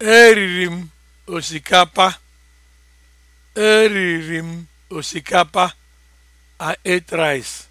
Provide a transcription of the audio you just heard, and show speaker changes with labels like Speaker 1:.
Speaker 1: Eriri m osikapa. Eriri m osikapa. a rice.